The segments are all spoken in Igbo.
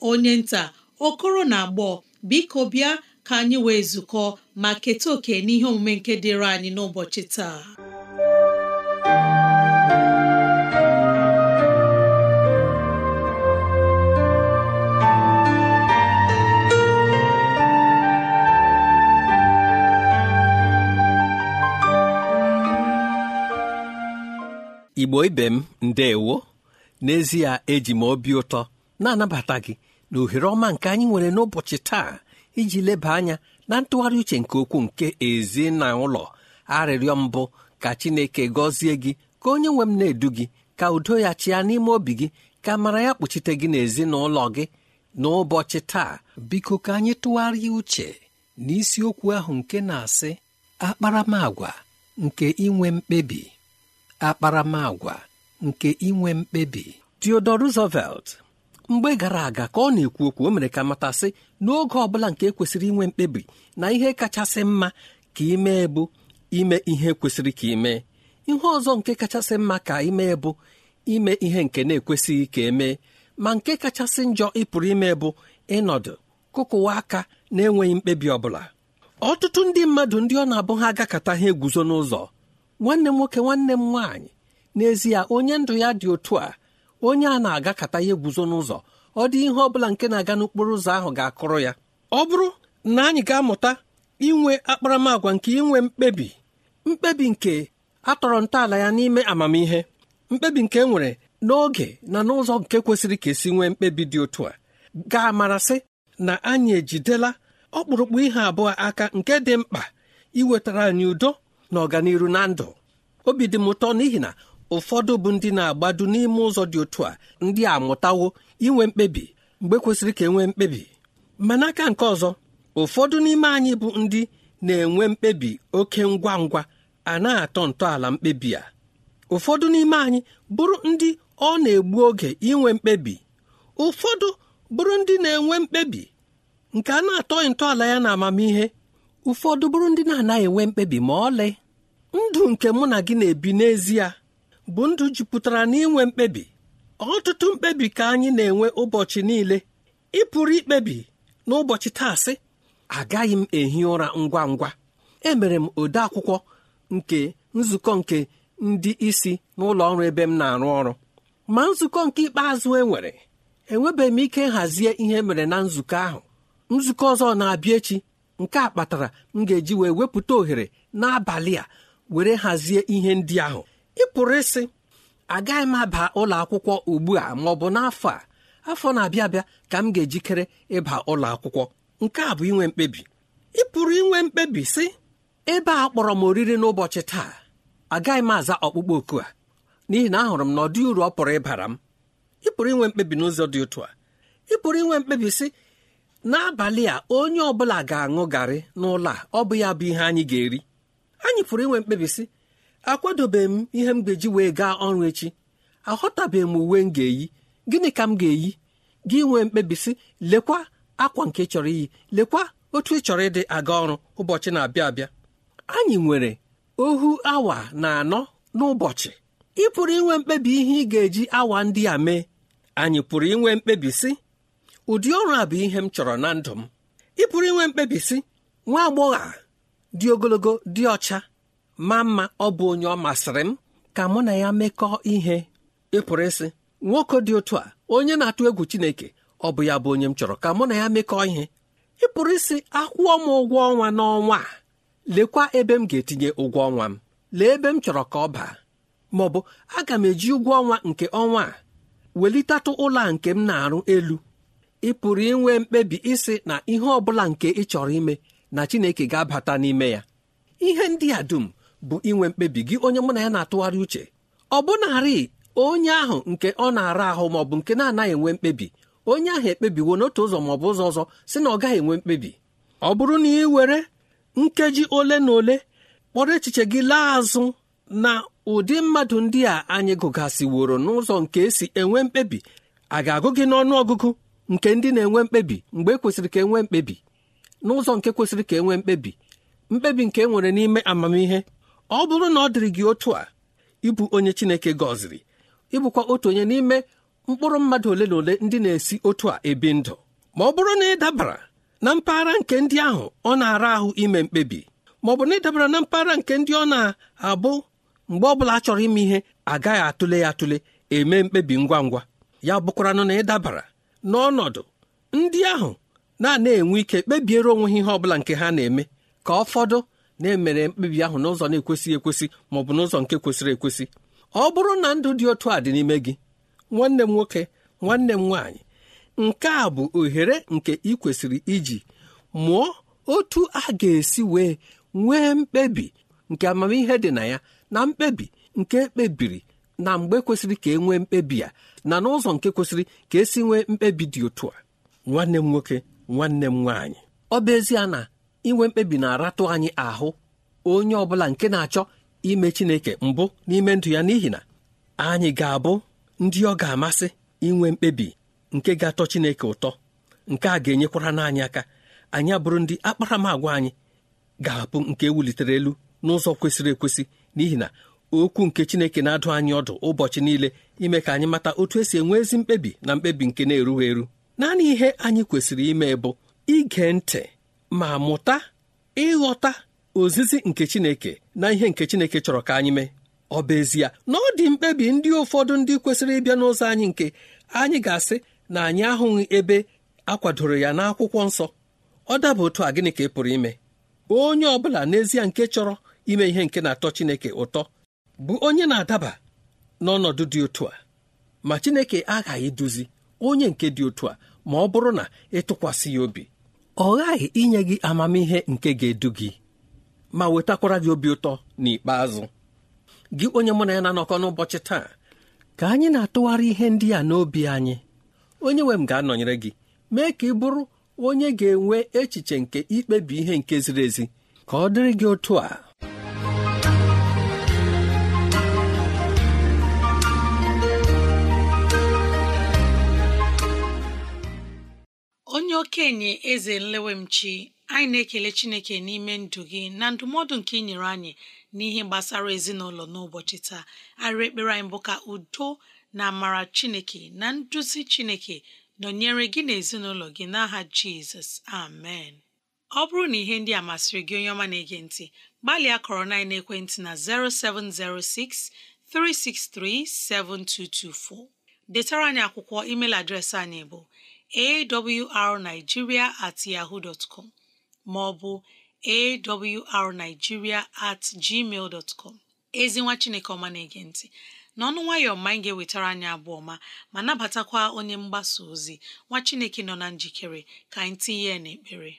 onye nta okoro na agbọ biko bịa ka anyị wee zukọ ma keta oke n'ihe omume nke dịịrị anyị n'ụbọchị taa Igbo ibe m ndeewo n'ezie eji m obi ụtọ na-anabata gị na ohere ọma nke anyị nwere n'ụbọchị taa iji leba anya na ntụgharị uche nke okwu nke ezi na ụlọ arịrịọ mbụ ka chineke gọzie gị ka onye nwe m na-edu gị ka udo ya chịa n'ime obi gị ka mara ya kpuchite gị n'ezinụlọ gị n'ụbọchị taa biko ka anyị tụgharịa uche n'isiokwu ahụ nke na-asị akparamagwa nke inwe mkpebi akparamagwa nke inwe mkpebi Theodore Roosevelt mgbe gara aga ka ọ na-ekwu okwu o mere ka matasị n'oge ọ bụla nke kwesịrị inwe mkpebi na ihe kachasị mma ka imee bụ ime ihe kwesịrị ka imee ihe ọzọ nke kachasị mma ka imee bụ ime ihe nke na-ekwesịghị ka emee ma nke kachasị njọ ị pụrụ ime bụ ịnọdụ kụkụwa aka na-enweghị mkpebi ọbụla ọtụtụ ndị mmadụ ndị ọ na-abụ ha agakọta ha eguzo n'ụzọ nwanne m nwoke nwanne m nwaanyị n'ezie onye ndụ ya dị otu a onye a na-agakata ihe eguzo n'ụzọ ọ dị ihe ọ bụla nke na-aga n'okporo ụzọ ahụ ga-akụrụ ya ọ bụrụ na anyị ga-amụta inwe akparamagwa nke inwe mkpebi mkpebi nke atọrọ ntọala ya n'ime amamihe mkpebi nke e nwere n'oge na n'ụzọ nke kwesịrị ka esi nwee mkpebi dị otu a ga-amarasị na anyị ejidela ọkpụrụkpụ ihe abụọ aka nke dị mkpa iwetara anyị udo na ọganihu na ndụ obi dị m ụtọ n'ihi na ụfọdụ bụ ndị na-agbado n'ime ụzọ dị otu a ndị a amụtawo inwe mkpebi mgbe kwesịrị ka enwee mkpebi ma n'aka nke ọzọ ụfọdụ n'ime anyị bụ ndị na-enwe mkpebi oke ngwa ngwa a na-atọ ntọala mkpebi a ụfọdụ n'ime anyị bụrụ ndị ọ na-egbu oge inwe mkpebi ụfọdụ bụrụ ndị na-enwe mkpebi nke a na-atọghị ntọala ya na amamihe ụfọdụ bụrụ ndị na-anaghị enwe mkpebi ma ọlị ndụ nke mụ na gị na-ebi n'ezie bụ ndụ jupụtara n'inwe mkpebi ọtụtụ mkpebi ka anyị na-enwe ụbọchị niile ị pụrụ ikpebi n'ụbọchị taasị agaghị m ehi ụra ngwa ngwa emere m ode akwụkwọ nke nzukọ nke ndị isi n'ụlọ ọrụ ebe m na-arụ ọrụ ma nzukọ nke ikpeazụ enwere enwebeghị m ike nhazie ihe mere na nzukọ ahụ nzukọ ọzọ na-abịa echi nke a kpatara m ga-eji wee wepụta ohere n'abalị a were hazie ihe ndị ahụ ị pụrụ ịsị agaghị m aba ụlọ akwụkwọ ugbu a ma ọ bụ n'afọ a afọ na-abịa abịa ka m ga-ejikere ịba ụlọ akwụkwọ nke a bụ inwe mkpebi ị pụrụ inwe mkpebi sị ebe a kpọrọ m oriri n'ụbọchị taa agaghị m aza ọkpụkpọ oku a n'ihi na ahụrụ m na ọ dị uru ọ pụrụ ịbara m ị pụrụ inwe mkpebi n'ụzọ dị otu a ị pụrụ inwe mkpebi sị n'abalị a onye ọ bụla ga-aṅụ garị n'ụlọ a ọ bụ ya bụ ihe anyị ga-eri anyị pụrụ inwe mkpebi sị akwadobeghị m ihe m ga-eji wee gaa ọrụ echi aghọtabeghị m uwe m ga-eyi gịnị ka m ga-eyi gị nwee mkpebisi lekwa akwa nke chọrọ iyi lekwa otu ị chọrọ ịdị aga ọrụ ụbọchị na-abịa abịa anyị nwere ohu awa na anọ n'ụbọchị ị pụrụ inwe mkpebi ihe ị ga-eji awa ndị a mee anyị pụrụ inwe mkpebi sị ụdị ọrụ a bụ ihe m chọrọ na ndụ m ị pụrụ inwe mkpebi sị nwa agbọghọ dị ogologo dị ọcha ma mma ọ bụ onye ọ masịrị m ka mụ na ya mekọọ ihe ịpụrụ isi. ịsị nwoke dị otu a onye na-atụ egwu Chineke ọ bụ ya bụ onye m chọrọ ka mụ na ya mekọọ ihe ịpụrụ isi akwụọ m ụgwọ ọnwa n'ọnwa a lekwa ebe m ga-etinye ụgwọ ọnwa m lee ebe m chọrọ ka ọ baa ma ọ bụ aga m eji ụgwọ ọnwa nke ọnwa a welitatụ ụlọ a nke m na-arụ elu ị pụrụ inwe mkpebi ịsị na ihe ọ bụla nke ị chọrọ ime na Chineke ga-abata n'ime ya ihe ndị a dum bụ inwe mkpebi gị onye mụ na ya na-atụgharị uche ọ bụnarị onye ahụ nke ọ na-ara ahụ maọ bụ nke na-anaghị enwe mkpebi onye ahụ ekpebiwo n'otu ụzọ ma ọ bụ ụzọ ọzọ si na ọ gaghị enwe mkpebi ọ bụrụ na ị were nkeji ole na ole kpọrọ echiche gị laa azụ na ụdị mmadụ ndị a anyị gụgasịworo n'ụzọ nke esi enwe mkpebi a ga-agụ gị n'ọnụ ọgụgụ nke ndị na-enwe mkpebi mgbe e kwesịrị ka enwe mkpebi n'ụzọ nke kwesịrị ka enwe mkpebi mkpebi nke e nwere n'ime amamihe ọ bụrụ na ọ dịrị gị otu a ịbụ onye Chineke gọziri ịbụkwa otu onye n'ime mkpụrụ mmadụ ole na ole ndị na-esi otu a ebi ndụ ma ọ bụrụ na ị dabara na mpaghara nke ndị ahụ ọ na-ara ahụ ime mkpebi ma ọ bụ na ị dabara na mpaghara nke ndị ọ na-abụ mgbe ọ bụla a chọrọ ime ihe agaghị atụle ya atụle eme mkpebi ngwa ngwa ya bụkwaranụ na ị dabara n'ọnọdụ ndị ahụ na-ana enwe ike kpebiere onwe ha ihe ọ bụla nke ha na-eme ka ọ fọdụ na-emere mkpebi ahụ n'ụzọ na-ekwesịghị ekwesị ma ọ bụ n'ụzọ nke kwesịrị ekwesị ọ bụrụ na ndụ dị otu a dị n'ime gị nwanne m nwoke nwanne m nwaanyị nke a bụ ohere nke ị kwesịrị iji mụọ otu a ga-esi wee nwee mkpebi nke amamihe dị na ya na mkpebi nke ekpebiri na mgbe kwesịrị ka e nwee mkpebi ya na n'ụzọ nke kwesịrị ka esi nwee mkpebi dị otu a nwanne m nwoke nwanne m nwaanyị ọ bụ ezie na inwe mkpebi na-aratụ anyị ahụ onye ọ bụla nke na-achọ ime Chineke mbụ n'ime ndụ ya n'ihi na anyị ga-abụ ndị ọ ga-amasị inwe mkpebi nke ga-atọ Chineke ụtọ nke a ga-enyekwara n'anyị aka anyị abụrụ ndị akparamagwa anyị ga-abụ nke wulitere elu n'ụzọ kwesịrị ekwesị n'ihi na okwu nke Chineke na-adụ anyị ọdụ ụbọchị niile ime ka anyị mata otu esi enwe ezi mkpebi na mkpebi nke na-erughị eru naanị ihe anyị kwesịrị ime bụ ige ntị ma mụta ịghọta ozizi nke Chineke na ihe nke Chineke chọrọ ka anyị mee ọ bụ ezie na ọ dị mkpebi ndị ụfọdụ ndị kwesịrị ịbịa n'ụzọ anyị nke anyị ga-asị na anyị ahụghị ebe akwadoro ya n'akwụkwọ nsọ ọ daba otu a gịnị ka ị pụrụ ime onye ọ bụla n'ezie nke chọrọ ime ihe nke na-atọ Chineke ụtọ bụ onye na-adaba n'ọnọdụ dị otu a ma Chineke aghaghị eduzi onye nke dị otu a ma ọ bụrụ na ịtụkwasị ya obi ọ ghaghị inye gị amamihe nke ga-edu gị ma wetakwara gị obi ụtọ n'ikpeazụ gị onye mụ na ya na-anọkọ n'ụbọchị taa ka anyị na-atụgharị ihe ndị a n'obi anyị onye nwe m ga-anọnyere gị mee ka ị bụrụ onye ga-enwe echiche nke ikpebi ihe nke ziri ezi ka ọ dịrị gị otu a onye okenye eze nlewemchi anyị na-ekele chineke n'ime ndụ gị na ndụmọdụ nke ị nyere anyị n'ihe gbasara ezinụlọ n'ụbọchị taa arịrị ekpere anyị bụ ka udo na amara chineke na nduzi chineke nọnyere gị na ezinụlọ gị n'aha jizọs amen ọ bụrụ na ihe ndị a masịrị gị onye ọma na-ege ntị gbalịa kọrọ na ekwentị na 0706 363 7224 detara anyị akwụkwọ email adreesị anyị bụ awrnigeria at yahoo dot com maọbụ awrnigeria at gmail dot com ezi nwa chineke ọma na-ege ntị n'ọnụ nwayọ ma anyị ga-ewetara anyị abụọ ma ma nabatakwa onye mgbasa ozi nwa chineke nọ na njikere ka anyị tinye ya n'ekpere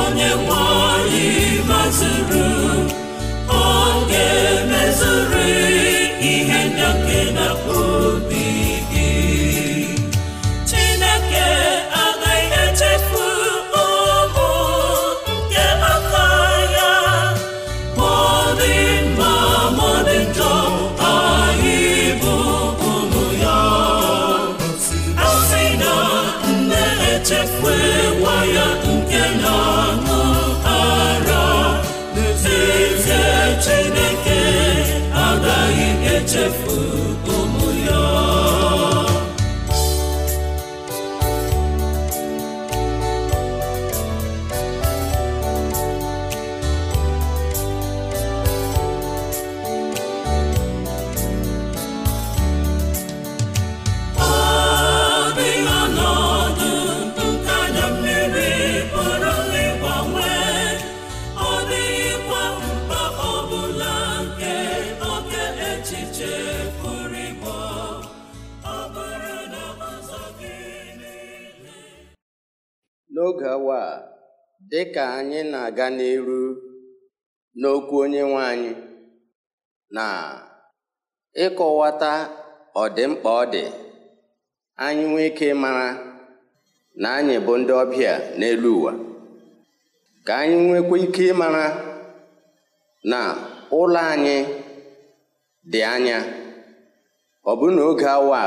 onye nwanyị anyị ọ ga-emezuri ihe ndake na obi gị Chineke agaghị echefu ụmụ nke aka ya mọdị mma ma njọ anyị bụ ụmụ ya asị na nne echefu nwa ya Chineke agaghị echefu dị ka anyị na-aga n'iru n'okwu onye nwe anyị na ịkọwata ọdịmkpa ọ dị anyị nwee ike mara na anyị bụ ndị ọbịa n'elu ụwa ka anyị nwekwa ike ịmara na ụlọ anyị dị anya ọ bụ na oge awa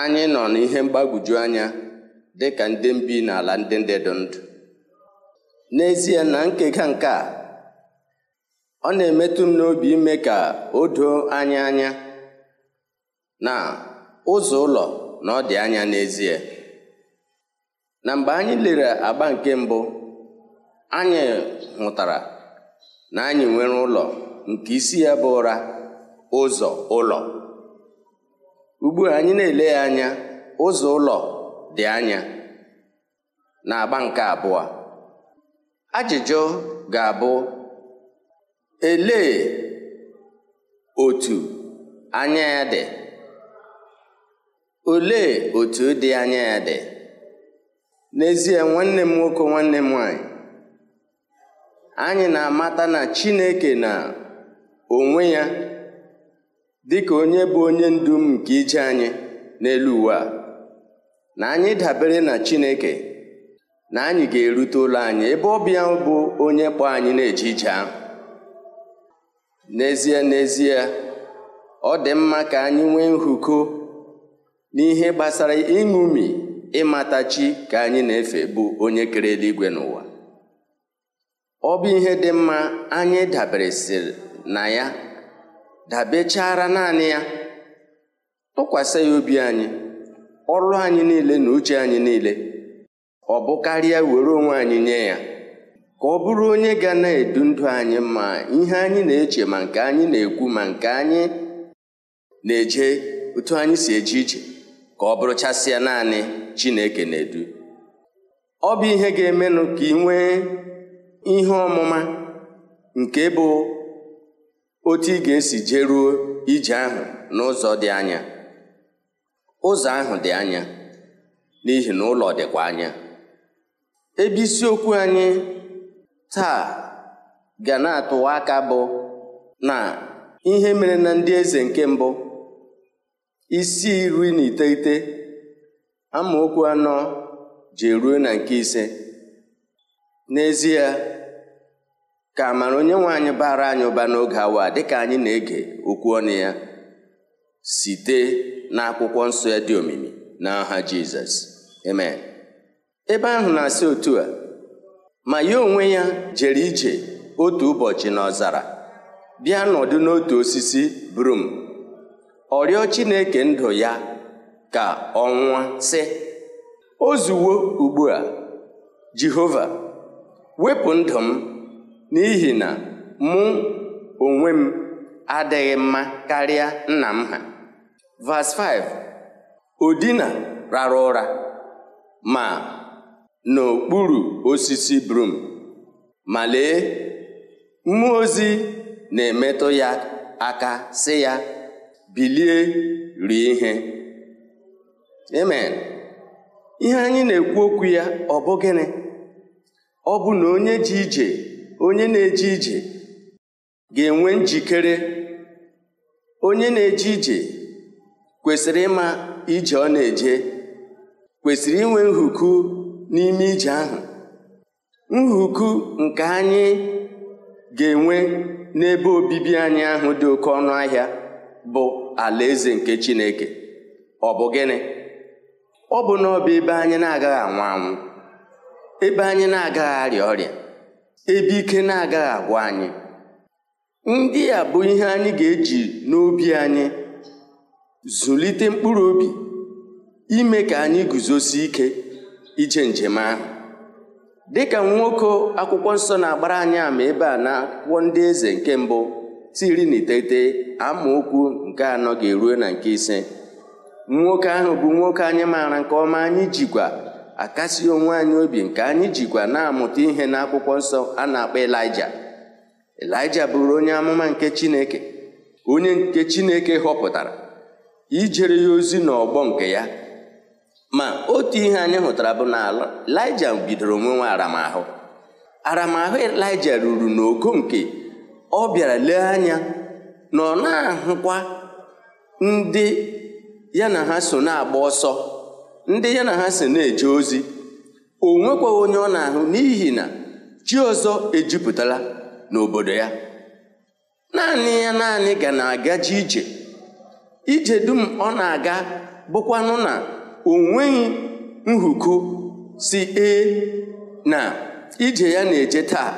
anyị nọ n'ihe mgbagwoju anya dị ka ndị mbi n'ala ndị ndị dị ndụ n'ezie na nkega nke a ọ na-emetụ m n'obi ime ka o doo anya anya na ụzọ ụlọ na ọ dị anya n'ezie na mgbe anyị lere agba nke mbụ anyị hụtara na anyị nwere ụlọ nke isi ya bụ ụra ụzọ ụlọ ugbu anyị na-ele ya anya ụzọ ụlọ dị anya na agba nke abụọ ajụjụ ga-abụ elee otu anya ya dị olee otu dị anya ya dị n'ezie nwanne m nwoke nwanne m nwanyị anyị na-amata na Chineke na onwe ya dị ka onye bụ onye ndu m nke ije anyị n'elu uwe a na anyị dabere na Chineke na anyị ga-erute ụlọ anyị ebe ọbịa bụ onye kpọ anyị na-eje ije n'ezie n'ezie ọ dị mma ka anyị nwee nhụko n'ihe gbasara ịṅụmi ịmata chi ka anyị na-efe bụ onye kere eluigwe n'ụwa ọ bụ ihe dị mma anyị daberesịrị na ya dabechara naanị ya tụkwasị ya obi anyị ọrụ anyị niile na uche anyị niile ọ bụ karịa were onwe anyị nye ya ka ọ bụrụ onye ga na-edu ndụ anyị ma ihe anyị na-eche ma nke anyị na-ekwu ma nke anyị na-eje otu anyị si eje ije ka ọ bụrụ chasịa naanị Chineke na-edu ọ bụ ihe ga-emenụ ka ị nwee ihe ọmụma nke bụ otu ị ga-esi jeruo ije ahụ n'ụzọ dị anya ụzọ ahụ dị anya n'ihi na ụlọ dịkwa anya ebe isiokwu anyị taa ga na-atụwa aka bụ na ihe mere na ndị eze nke mbụ isi iri na iteghete amaokwu anọ ji eruo na nke ise n'ezie ka amara onye nwe anyị bara anyị ụba n'oge awa dịka anyị na-ege okwu ọnụ ya site n'akwụkwọ nsọ ya dị omimi n'aha Jizọs amen ebe ahụ na-asị otu a ma ya onwe ya jere ije otu ụbọchị na ọzara, bịa nọdụ n'otu osisi brum ọ rịọ Chineke ndụ ya ka ọ nwụọ sị ozuwo ugbu a Jehova wepụ ndụ m n'ihi na mụ onwe m adịghị mma karịa nna m ha vas 5 odina rara ụra ma n'okpuru osisi brum ma lee mmụọ ozi na-emetụ ya aka sị ya bilie rie ihe amen ihe anyị na-ekwu okwu ya ọ bụ gịnị ọ bụ na onye ji ije onye na-eje ije ga-enwe njikere onye na-eje ije kwesịrị ịma ije ọ na-eje kwesịrị inwe nhuku n'ime ije ahụ nhuku nke anyị ga-enwe n'ebe obibi anyị ahụ dị oke ọnụ ahịa bụ alaeze nke Chineke ọ bụ gịnị ọ bụ na ebe anyị na-agaghị anwụ anwụ ebe anyị na-agaghị arịa ọrịa ebe ike na-agaghị agwụ anyị ndị a bụ ihe anyị ga-eji n'obi anyị zụlite mkpụrụ obi ime ka anyị guzosi ike ije njem ahụ dịka nwoke akwụkwọ nsọ na-agbara anyị ama ebe a na akwụkwọ ndị eze nke mbụ tiri na iteghete amaokwu nke anọ ga-eruo na nke ise nwoke ahụ bụ nwoke anyị maara nke ọma anyị jikwa akasi onwe anyị obi nke anyị jikwa na-amụta ihe n'akwụkwọ nsọ a na-akpọ Elija Elija bụrụ onye amụma nke Chineke onye nke Chineke họpụtara ijere ya ozi n'ọgbọ nke ya ma otu ihe anyị hụtara bụ na Elija bidoro nwa aramahụ aramahụ Elija ruru n'ogo nke ọ bịara lee anya na ọ na-ahụkwa ndị ya na ha so na-agba ọsọ ndị ya na ha so na-eje ozi o onye ọ na-ahụ n'ihi na chi ọzọ ejupụtala n'obodo ya naanị ya naanị ga na-agaji ije ije dum ọ na-aga bụkwanụ na o nweghị si ee na ije ya na-eje taa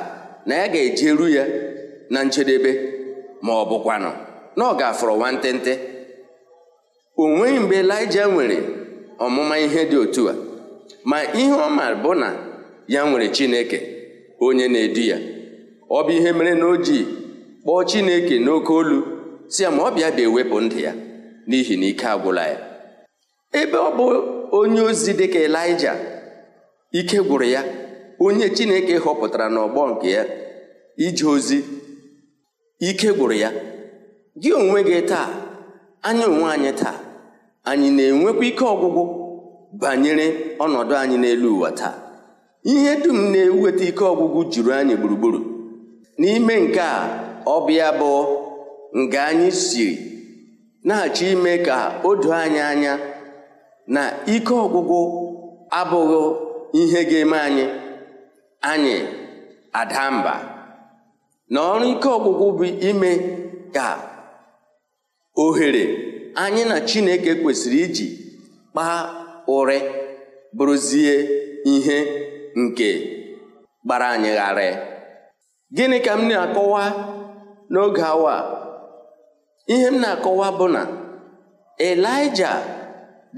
na ya ga-ejeru ya na njedebe ma ọ bụkwanụ na ọ ga-afọrọ nwantịntị o nweghị mgbe Elija nwere ọmụma ihe dị otu a ma ihe ọ ma bụ na ya nwere Chineke onye na-edu ya ọ bụ ihe mere na o kpọọ chineke n'oke olu si ya ma ọ bịa bịa ewepụ ndụ ya n'ihi na ike agwụla ya ebe ọ bụ onye ozi dịka elija ike gwụrụ ya onye chineke họpụtara n'ọgbọ nke ya ije ozi ike gwụrụ ya gị onwe gị taa anyị onwe anyị taa anyị na-enwekwa ike ọgwụgwụ banyere ọnọdụ anyị n'elu ụwa taa ihe dum na-eweta ike ọgwụgwụ juru anyị gburugburu n'ime nke a ọbịa nke bụ nga anyị siri na-achọ ime ka o doo anyị anya na ike ọgwụgwụ abụghị ihe ga-eme anyị anyị ada na ọrụ ike ọgwụgwụ bụ ime ka ohere anyị na Chineke kwesịrị iji kpaa ụrị bụrụzie ihe nke gbara anyị ghara. gịnị ka m na-akọwa n'oge awa a? ihe m na-akọwa bụ na elija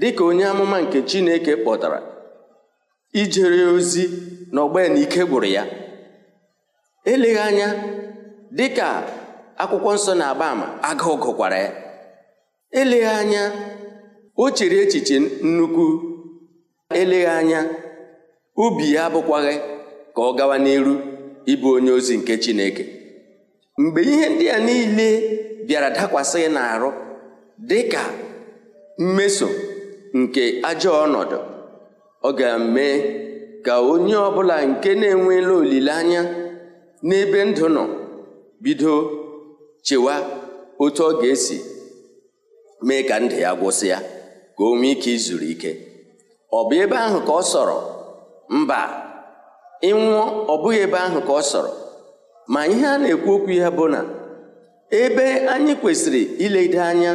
dịka onye amụma nke chineke kpọtara ijere ozi na ike gwụrụ ya eleghị anya dịka akwụkwọ nsọ na-agba ama agụụ gụkwara ya eleghị anya o chere echiche nnukwu eleghị anya obi ya abụkwaghị ka ọ gawa n'elu. ịbụ onye ozi nke Chineke mgbe ihe ndị a niile bịara dakwasị n'arụ dị ka mmeso nke ajọ ọnọdụ ọ ga-eme ka onye ọbụla nke na enwela olileanya n'ebe ndụ nọ bido chewa otu ọ ga-esi mee ka ndụ ya gwụsị ya ka o nwee ike izuru ike ọ bụ ebe ahụ ka ọ sọrọ mba ịnwụọ ọ bụghị ebe ahụ ka ọ sọrọ ma ihe a na-ekwu okwu ya bụ na ebe anyị kwesịrị iledo anya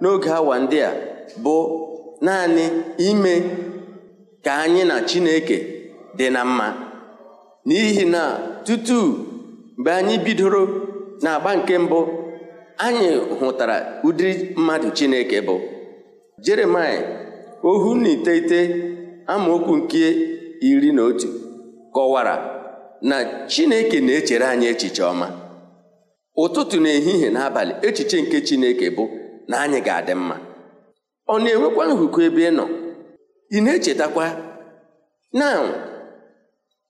n'oge awa ndị a bụ naanị ime ka anyị na Chineke dị na mma n'ihi na tutu mgbe anyị bidoro n'agba nke mbụ anyị hụtara ụdịrị mmadụ Chineke bụ Jeremaịa ohu na iteghete amaokwu nke iri na otu kọwara na Chineke na-echere anyị echiche ọma ụtụtụ na ehihie na echiche nke Chineke bụ na anyị ga-adị mma ọ na-enwekwa nhụkọ ebe ị nọ ị na-echetakwa na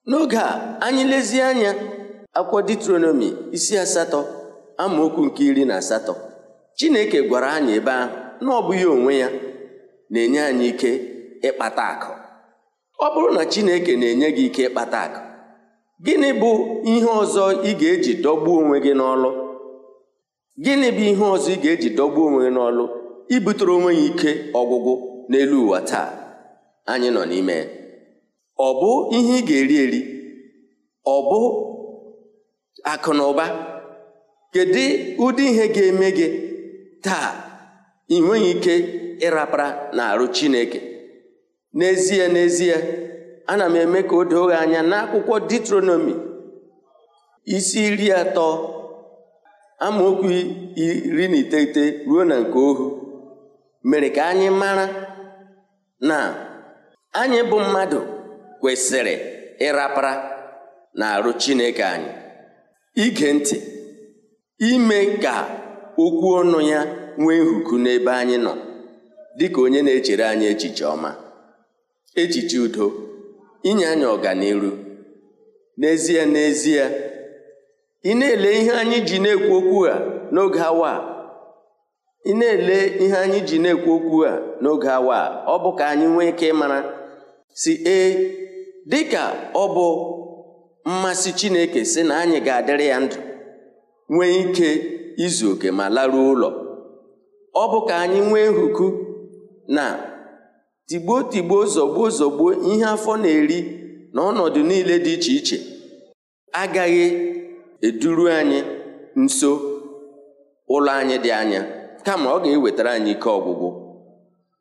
n'oge a anyị lezie anya akwụkwọ Deuteronomi isi asatọ amaokwu nke iri na asatọ Chineke gwara anyị ebe ahụ na ọ bụghị onwe ya na-enye anyị ike ịkpata akụ ọ bụrụ na chineke na-enye gị ike ịkpata akụ gịnị bụ ihe ọzọ ị ga-eji dọgbuo onwe gị n'ọlụ gịnị bụ ihe ọzọ ị ga-eji dọgbuo onwe gị n'ọlụ ibutere onwe ya ike ọgwụgwụ n'elu ụwa taa anyị nọ n'ime ọ bụ ihe ị ga-eri eri ọ bụ akụ na ụba kedu ụdị ihe ga-eme gị taa ị nweghị ike ịrapara na arụ chineke n'ezie n'ezie ana m eme ka o doo anya n'akwụkwọ Ditronomi isi iri atọ amaokwu iri na iteghete ruo na nke ohu mere ka anyị mara na anyị bụ mmadụ kwesịrị ịrapara na-arụ Chineke anyị ige ntị ime ka okwu ọnụ ya nwee nhuku n'ebe anyị nọ dịka onye na-echere anyị echiche ọma Ejiji udo inye anyị ọganiru n'ezie n'ezie ị na-ele ihe anyị ji na-ekwu okwu a n'oge awa ị na-ele ihe anyị ji na-ekwu okwu a n'oge awa ọ bụ ka anyị nwee ike ịmara si ee dịka ọ bụ mmasị Chineke si na anyị ga-adịrị ya ndụ nwee ike izu oke ma laruo ụlọ ọ bụ ka anyị nwee nhuku na tigbuo tigbuo zọgbuo zọgbuo ihe afọ na-eri na ọnọdụ niile dị iche iche agaghị eduru anyị nso ụlọ anyị dị anya kama ọ ga-ewetara anyị ike ọgwụgwụ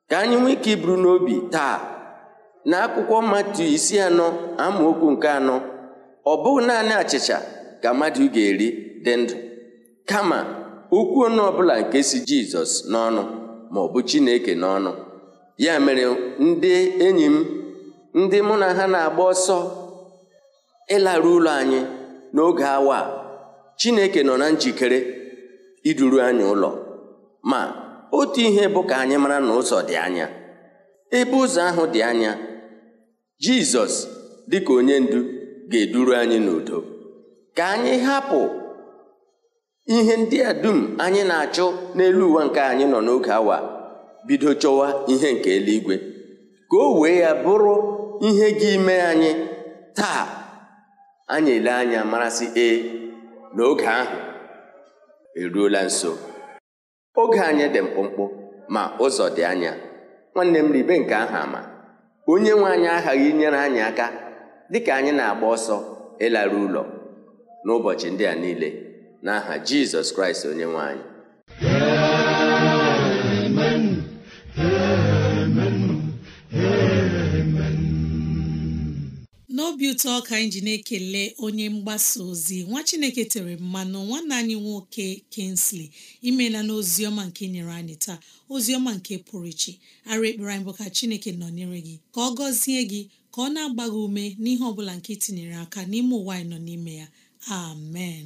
ka anyị nwee ike iburu n'obi taa na akwụkwọ mmatụ isi anọ amaokwu nke anọ ọ bụghị naanị achịcha ka mmadụ ga-eri dị ndụ kama okwu ọnụ ọbụla nke si jizọs n'ọnụ maọbụ chineke n'ọnụ ya mere ndị enyi m ndị mụ na ha na-agba ọsọ ịlarụ ụlọ anyị n'oge awa Chineke nọ na njikere iduru anyị ụlọ ma otu ihe bụ ka anyị mara na ụzọ dị anya ebe ụzọ ahụ dị anya Jizọs dịka onye ndu ga-eduru anyị n'udo ka anyị hapụ ihe ndị a dum anyị na-achụ n'elu ụwa nke anyị nọ n'oge awa bido chọwa ihe nke eluigwe ka o wee ya bụrụ ihe gị ime anyị taa anyị ele anya marasị ee na oge ahụ eruola nso oge anyị dị mkpụmkpụ ma ụzọ dị anya nwanne m ribe nke aha ama onye nwe aghaghị inyere anyị aka dịka anyị na-agba ọsọ ịlara ụlọ n'ụbọchị ndị a niile n'aha Jizọs Kraịst onye nwe obi ụtọ ka anyị na-ekele onye mgbasa ozi nwa chineke tere mmanụ nwanne anyị nwoke kensley imela na ọma nke nyere anyị taa ozi ọma nke pụrụ iche ara ekpere anyị bụ ka chineke nọnyere gị ka ọ gọzie gị ka ọ na-agba ume n'ihe ọ bụla nke itinyere aka n'ime ụwa anyị nọ n'ime ya amen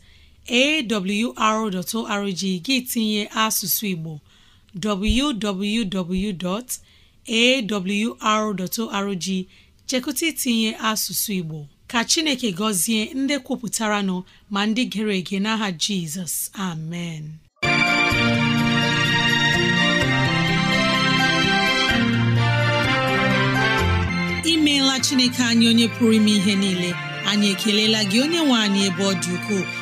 awr.org gị tinye asụsụ Igbo www.awr.org chekụta itinye asụsụ Igbo ka Chineke gọzie ndị kwupụtara nọ ma ndị gere ege n'aha Jizọs amen imeela Chineke anyị onye pụrụ ime ihe niile anyị ekelela gị onye nwe anyị ebe ọ dị ukwuu